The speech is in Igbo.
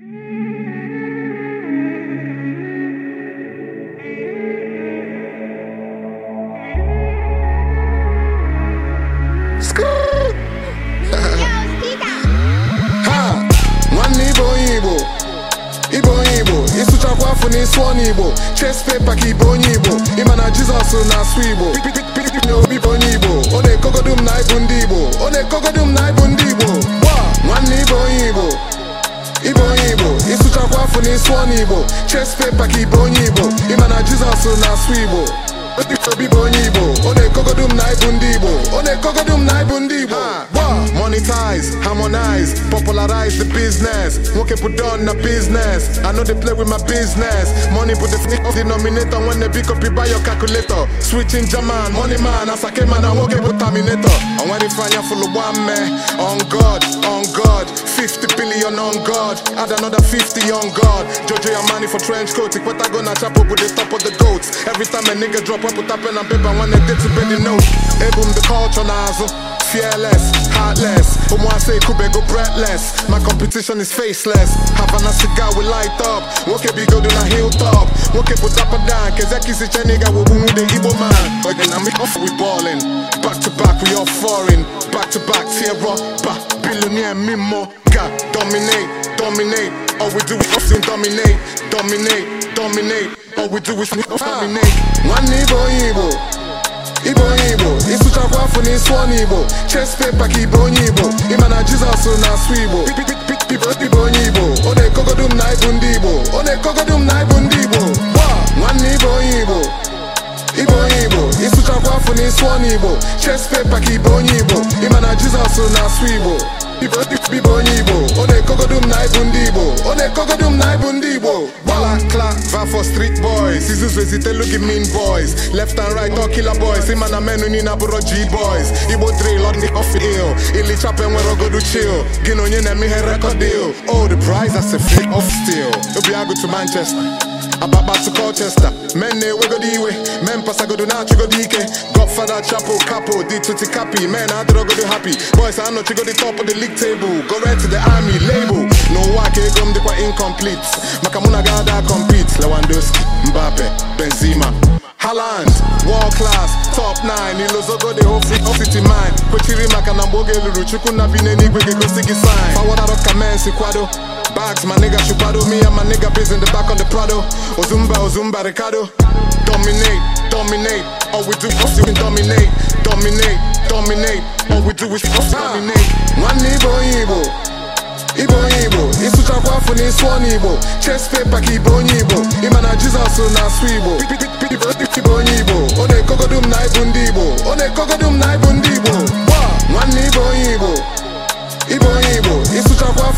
ịsụchakwa afọ ọnụ igbo ches pepa ka ibe onye igbo ịma na jizọs na-asụ igbo na obi bụ onye igbo ọ na m na ibu ndị igbo ọ na na ibu ndị afụ n'isi ọnụ igbo chess paper ka ibe onye igbo ịma na jizọs na-asụ igbo obi bụ onye igbo ọ na-ekogodu m na ịbụ ndị igbo ọ na na ịbụ ndị igbo Organize, harmonize, popularize the business. Nwoke put on na business. I know they play with my business. Money put the sneak denominator when they pick up you buy your calculator. Switching German, money man, as I came and I woke up with Terminator. And when they find you full of one man, on God, on God. 50 billion on God, add another 50 on God. Jojo your money for trench coat, it what I gonna chop up with the top of the goats. Every time a nigga drop, I put up pen and paper when they did to bed the note. Ebum the culture nozzle. Fearless, heartless. Omoase Kube go breathless. My competition is faceless. have Havana cigar we light up. Woke be good on a hilltop. Woke put up and down. Kezeki si cheniga we boom the Igbo man. Again, I'm off we ballin'. Back to back we all foreign. Back to back tear up. Back billionaire mimo. God dominate, dominate. All we do is often dominate, dominate, dominate. All we do is dominate. One Igbo onye paper ka onye Igbo ịma na jesus na asụ Igbo ibe onye Igbo ọ na-ekogodu m na ịbụ ndị Igbo ọ na na ịbụ ndị Igbo gba nwanne ibe onye Igbo ibe Igbo na paper ka ibe onye Igbo ịma na na asụ Igbo ibe onye igbo ọ na-ekogodu m na ịbụ ndị igbo ọ na-ekogodu m na ịbụ ndị igbo gbala kla va for street boys izuzu ezitelu gị mean boys left and right all killer boys ịma na menu niile abụrụ g boys igbo drill on the off ill ilichapa enwere ogodu chill gị na onye na-eme ihe record deal oh the prize as a flick of steel obi agụ to manchester Ababasi Colchester Men na-ewegodi iwe men pasagodo na-achịgodi ike Godfather chapel Capo di tuti capi men adịrọgodo happy Boys anọchigodi top of the league table Go right to the army label N'ụwa ka ego m dịkwa incomplete Maka mụ na ada compete Lewandowski, Mbappe, Benzema Haaland, world class, top 9 Ilozogo dị ofiti mine Kwechiri maka na mgbe oge eluru Chukwu na bi ga-egosi gị sign ka men si kwado bags. My nigga chupado me and my nigga biz in the back of the Prado. Ozumba, Ozumba, Ricardo. Dominate, dominate. All we do is fucking dominate, dominate, dominate. All we do is fucking dominate. One Igbo, Igbo. Igbo, Igbo. Ịsụchakwa afọ na ịsụ ọnụ Igbo. Chess paper ka Igbo onye Igbo. Ịma na Jizọs na asụ Igbo. Igbo onye Igbo. Ọ